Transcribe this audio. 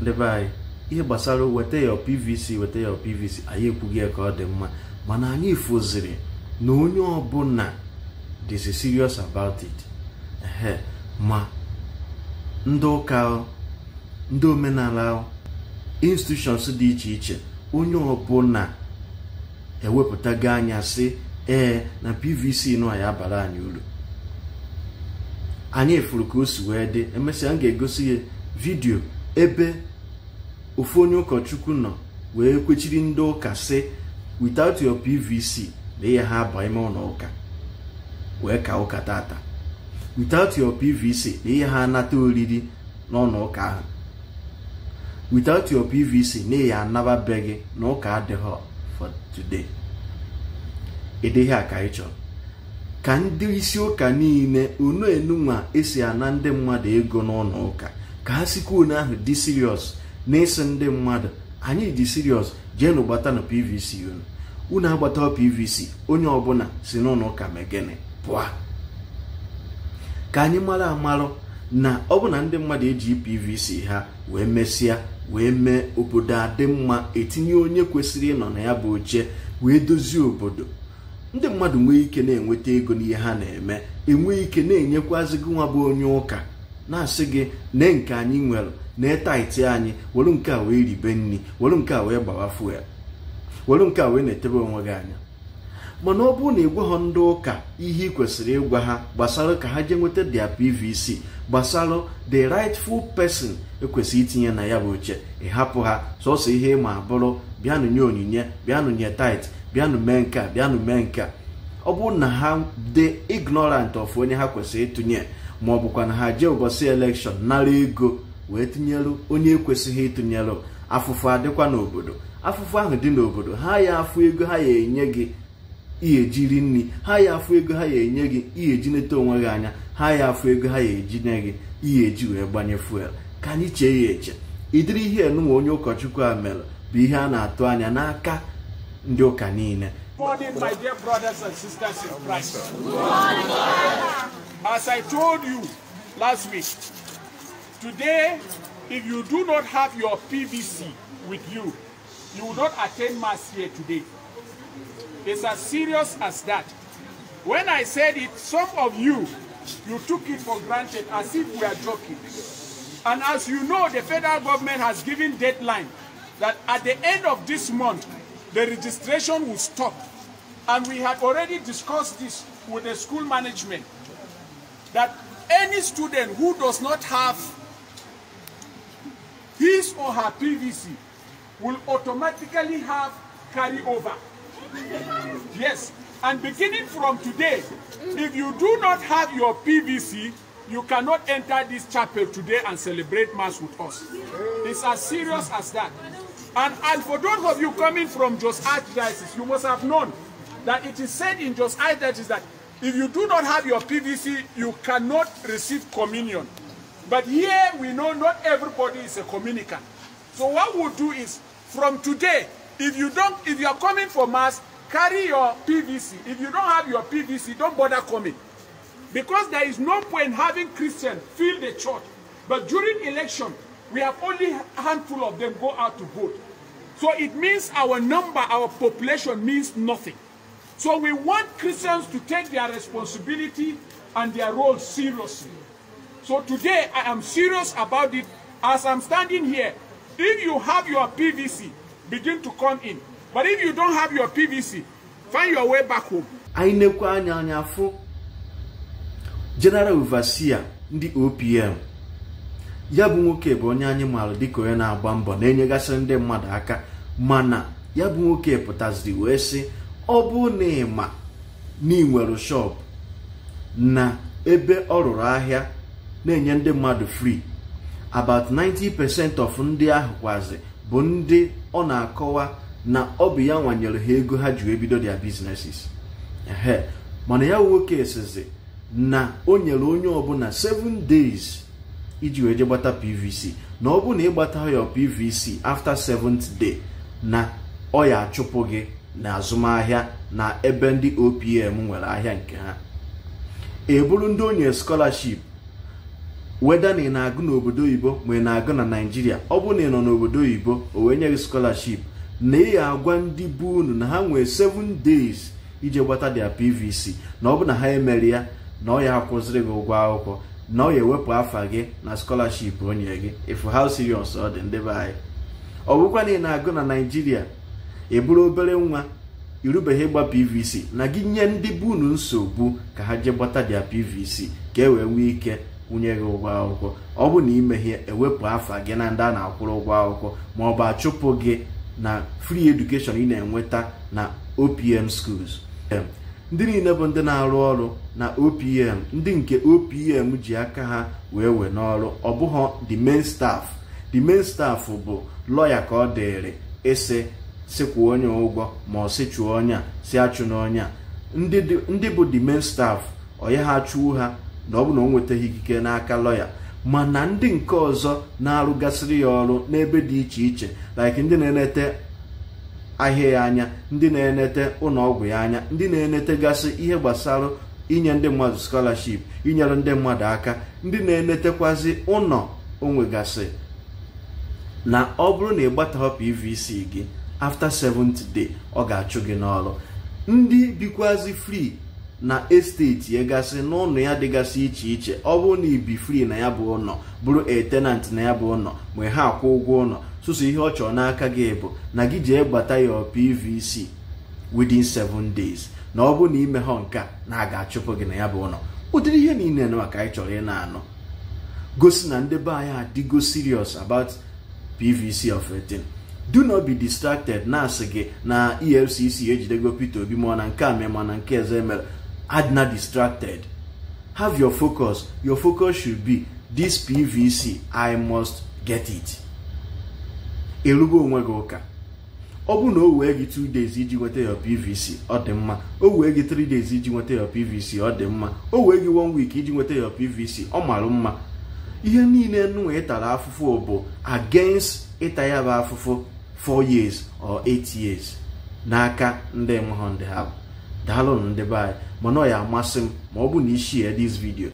ndebe anyị ihe gbasara weta ya pvc weta ya pvc anyị ekwughị ya ka ọ dị mma mana anyị fụziri na onye ọbụla dịzi serious about it ehe ma ndị ụka ndị omenala institutions dị iche iche onye ọbụla ewepụtago anya sị ee na pvc nọ ya abara anyị uru anyị furu ka o si wee dị emesịa m ga-egosi ya vidiyo ebe ofu onye ụkọchukwu nọ wee kwechiri ndị ụka sị without your pvc na ihe ha abụọ ime ụlọ ụka wee ka ụka tata without your pvc na ihe ha anata oriri n'ụlọ ụka ahụ without your pvc na ihe anababeghị na ụka adịghị for today ịdịghị a ka chọrọ ka ndị isi ụka niile unu enunwa esi ana ndị mmadụ ego n'ụlọ ụka ka ha sikwa onye ahụ dị serious na eso ndị mmadụ anyị ji dị jee jeenụ gbatanụ pvc unu unu agbata pvc onye ọbụla si n'ụlọ ụka megene pụọ ka anyị mara amarụ na ọ na ndị mmadụ eji pvc ha wee mesịa wee mee obodo adị mma etinye onye kwesịrị ịnọ na ya bụ oche wee dozie obodo ndị mmadụ nwee ike na-enweta ego n'ihe ha na-eme enwee ike na-enyekwazigị nwa bụ onye ụka na-asị gị nne nke anyị nwere na taiti anyị were nke a wee ribe nri were nke a wee gbawa fuel were nke a wee na-etebe onwe gị anya mana ọ bụrụ na ị gwaghọ ndị ụka ihe ị kwesịrị ịgwa ha gbasara ka ha jee nweta dia pvc gbasara the rightful person ekwesị itinye na ya bụ oche ịhapụ ha sọsọ ihe ịma bụrụ bịanụ nye onyinye bịanụ nye tait bịanụ mee nke a bịanụ mee nke a ọ bụrụ na ha dị ignorant of onye ha kwesịrị ịtụnye ma ọ bụkwa na ha jee ụbọchị elekshọn nara ego wee tụnyelụ onye ekwesịghị ịtụnyelụ afụfụ adịkwa n'obodo afụfụ ahụ dị n'obodo ha ya afụ ego ha ya enye gị ijiri nri ha ya afụ ego ha ya enye gị iyeji neta onwe gị anya ha ya afụ ego ha ya eji gị iyeji wee gbanye fuel ka anyị chee ya eche ịdịrị ihe enunwa onye ụkọchukwu a mere bụ ihe a na-atụ anya n'aka Ndoka Morning, my dear brothers and sisters in Christ. As I told you last week, today, if you do not have your PVC with you, you will not attend Mass here today. It's as serious as that. When I said it, some of you, you took it for granted as if we are joking. And as you know, the federal government has given deadline that at the end of this month, the registration will stop. And we had already discussed this with the school management, that any student who does not have his or her PVC will automatically have carryover. yes, and beginning from today, if you do not have your PVC, you cannot enter this chapel today and celebrate Mass with us. It's as serious as that. And, and for those of you coming from Jos Archdiocese, you must have known that it is said in Jos Archdiocese that if you do not have your PVC, you cannot receive communion. But here we know not everybody is a communicant. So what we'll do is, from today, if you don't, if you are coming for mass, carry your PVC. If you don't have your PVC, don't bother coming. Because there is no point having Christians fill the church. But during election, we have only a handful of them go out to vote. So it means our number, our population means nothing. So we want Christians to take their responsibility and their role seriously. So today I am serious about it as I'm standing here. If you have your PVC, begin to come in. But if you don't have your PVC, find your way back home. Anyị na-ekwu anya anya afọ General Overseer ndị OPM ya bụ nwoke bụ onye anyị maara dịka onye na-agba mbọ na-enyegasị ndị mmadụ aka mana ya bụ nwoke pụtaziri wee sị ọ bụ na ịma na ị nwere shop na ebe ọ rụrụ ahịa na-enye ndị mmadụ free about 90% of ndị ahụ kwazi bụ ndị ọ na-akọwa na ọ bụ ya nwanyere ha ego ha ji ebido their businesses mana ya nwoke sizi na o nyere onye ọbụla 7 days iji wee je gbata pvc na ọ bụ na ịgbata ya pvc after seventh day na ọ ya achụpụ gị na azụmahịa na ebe ndị opm nwere ahịa nke ha eburu ndị onye scholarship weda na ị na-agụ n'obodo oyibo ma ị na-agụ na naijiria ọ bụ na ị nọ n'obodo oyibo o wee nye gị scholarship na ị agwa ndị bụ unu na ha nwee seven days ije gbata dia pvc na ọ bụ na ha emere ya na ọ ya akwụziri gị ụgwọ akwụkwọ na ọ ga-ewepụ afa gị na skọlaship onye gị efu how serious ọ dị ndebe anyị ọ bụkwa na ị na-agụ na naijiria eburu obere nwa irubeghị ịgba pvc na gị nye ndị bụ unu nsogbu ka ha jee gbata dia pvc ka e wee nwee ike kwụnye gị ụgwọ akwụkwọ ọ bụ na imeghe ewepụ afa gị na ndị a na-akwụrụ ụgwọ akwụkwọ ma ọ bụ achụpụ gị na free education ị na-enweta na opm schools ndị niile bụ ndị na-arụ ọrụ na opm ndị nke opm ji aka ha wee wee n'ọrụ ọ bụghọ the main staff the main staff bụ lọya ka ọ dịrị ịsị sịkwuo onye ụgwọ ma ọ chụọ onye a si achụ onye a ndị bụ the main staff onye ha achụwo ha na ọ bụ na ọ nwetaghị ikike n'aka lọya mana ndị nke ọzọ na-arụgasịrị ya ọrụ n'ebe dị iche iche like ndị na-enete ahịa ya anya ndị na-enete ụlọọgwụ ya anya ndị na gasị ihe gbasara inye ndị mmadụ skolaship inyere ndị mmadụ aka ndị na-enetekwazi ụlọ gasị na ọ bụrụ na ị pvc gị afta 7th day ọ ga-achụ gị n'ọrụ ndị bikwazi free na esteti egasị n'ụlọ ya dịgasị iche iche ọ bụrụ na ibi fri na ya bụ ụlọ bụrụ etenant na ya bụ ụlọ ma ha akwụ ụgwọ ụlọ sụsụ ihe ọ chọrọ n'aka gị bụ na gị jee gbata ya pvc within 7 days na ọ bụrụ na imeghọ nke na a ga-achụpụ gị na ya bụ ụlọ ụdịrị ihe niile na maka anyị chọrọ ị na-anụ gosi na ndị be anyị adịgo serious about pvc of 18 do not be distracted na-asị gị na efcc ejidego peter obi mụọ na nke a mee mana nke eze mere Adna distracted. Have your focus. Your focus should be this PVC, I must get it. Erugo onwe gị ụka. Ọ bụrụ na o wee gị 2 days iji nweta your PVC, ọ dị mma. O wee gị 3 days iji nweta your PVC, ọ dị mma. O wee gị 1 week iji nweta your PVC, ọ mara mma. Ihe niile nwa ịtara afụfụ bụ against ịta ya bụ afụfụ 4 years or 8 years n'aka ndị mụhụ ndị ha bụ. daalụ ndị be anyị mana ọ ya amasị m ma ọ bụ na i ya dis vidio